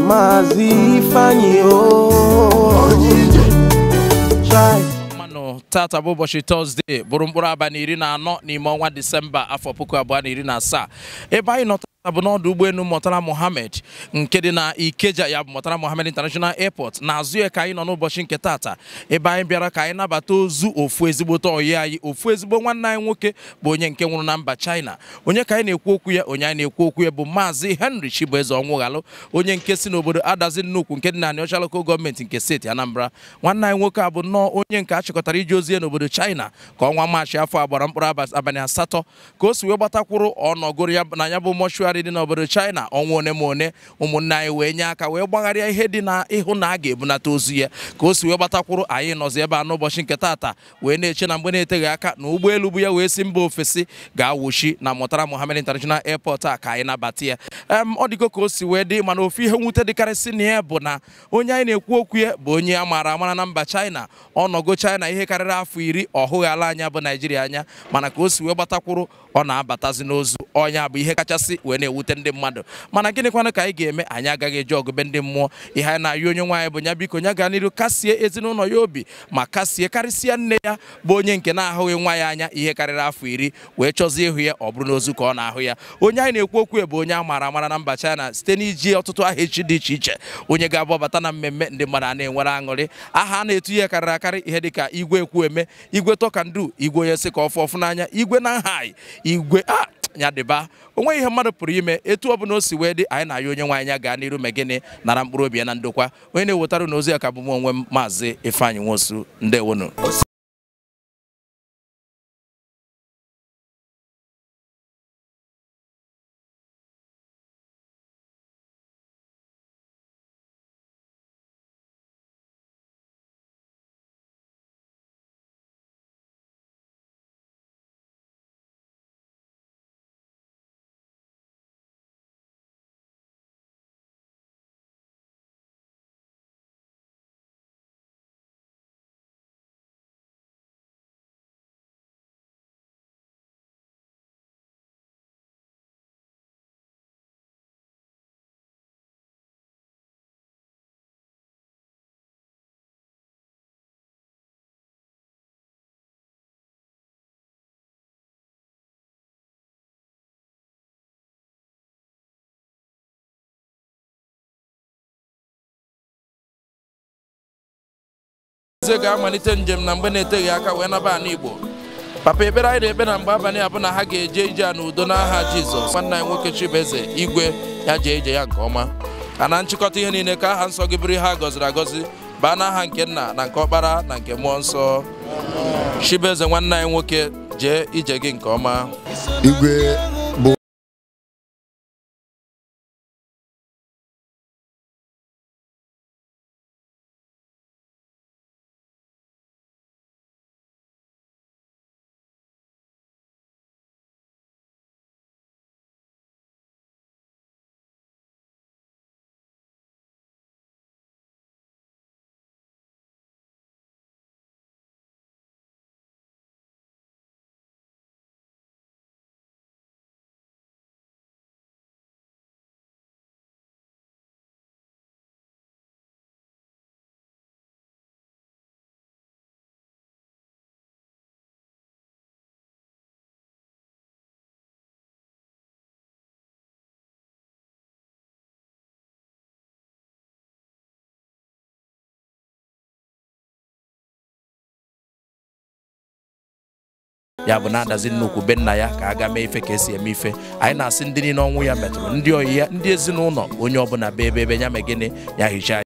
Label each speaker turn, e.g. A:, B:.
A: Maazị Ifeanyi manụ tata bụ ụbọchị tọzdee bụrụ mkpụrụ na iri na anọ n'ime ọnwa disemba afọ puku abụọ na iri na asaa ebe anyị nọ a bụ n'ọdụ ụgbọelu Murtala Mohammed nke dị na Ikeja ya bụ Murtala Mohammed International Airport n'azụ ya ka anyị nọ n'ụbọchị nke tata ebe anyị bịara ka anyị nabata ozu ofu ezigbote oyi anyị ofu ezigbo nwanne anyị nwoke bụ onye nke nwụrụ na mba China onye ka anyị na-ekwu okwu ya onye anyị na-ekwu okwu ya bụ maazị Henry Chibueze Onwughalu onye nke si n'obodo Adazi Nnukwu nke dị na Anịọcha Local Gọọmenti nke steeti Anambra nwanne anyị nwoke a bụ nnọọ onye nke achịkọtara iji ozi ya n'obodo China ka ọnwa Maachị afọ agbara mkpụrụ abalị asatọ ka o si wee gbatakwuru ọnọgoro ya na ya bụ mọchụarị mmadụ dị n'obodo China ọnwa one ma one ụmụnne anyị wee nye aka wee gbagharịa ihe dị na ịhụ na a ga-ebunata ozu ya ka o si wee gbatakwuru anyị nọzi ebe a n'ụbọchị nke taata wee na-eche na mgbe na-eteghị aka na ụgbọelu bụ ya wee si mba ofesi ga-awụchi na mụtara Mohammed International Airport a ka anyị nabata ya ọ dịgo ka o si wee dị mana ofe ihe nwute dịkarịsị na ya bụ na onye anyị na-ekwu okwu ya bụ onye a maara amara na mba China ọnọgo China ihe karịrị afọ iri ọ hụghị ala anya bụ Naijiria anya mana ka o si wee gbatakwuru ọ na-abatazi n'ozu ọnya bụ ihe kachasị wee na-ewute ndị mmadụ mana gịnịkwanụ ka anyị ga-eme anyị agaghị eji ọgụbe ndị mmụọ ihe anyị na-ayọ onye nwaanyị bụ nya biko nya gaa n'iru kasie ezinụlọ ya obi ma kasie karịsịa nne ya bụ onye nke na-ahụghị nwa ya anya ihe karịrị afọ iri wee chọzie ịhụ ya ọ bụrụ n'ozu ka ọ na-ahụ ya onye anyị na-ekwu okwu bụ onye a mara amara na mba China site n'iji ọtụtụ aha echi dị iche iche onye ga abụ ọbata na mmemme ndị mmadụ a na-enwere aṅụrị aha a na-etu ihe karịrị akarị ihe ka igwe eme igwe tọkandu igwe onye sị ka ọfụ ọfụ n'anya igwe na nhai igwe ah, nyadịba onwe ihe mmadụ pụrụ ime etu ọ bụla o si wee dị anyị na-ayọ onye nwe anya gaa n'iru megịnị
B: nara mkpụrụ obi ya na ndokwa onye na-ewetara na ozi ya ka bụ m onwe m maazị Ifeanyị Nwosu ndewonu eze ga-amalite njem na mgbe na-eteghị aka wee naba ala Igbo papa ekpere anyị na-ekpe na mgbe abalị abụ na ha ga-eje ije a
A: n'udo n'aha Jizọs nwanne anyị nwoke Chibueze igwe ya jee ije ya nke ọma ka na nchịkọta ihe niile ka aha nsọ gị bụrụ ihe a gọziri agọzi baa n'aha nke nna na nke ọkpara na nke mmụọ nsọ
B: Chibueze nwanne anyị nwoke jee ije gị nke ọma ya bụ na-adazi nnukwu be na ya ka aga ga mee ife ka
A: esi eme ife anyị na-asị ndị niile ọnwụ ya metụrụ ndị oyi ya ndị ezinụlọ onye ọ ọbụla be ebe ebe ya
B: megịnị ya hichaa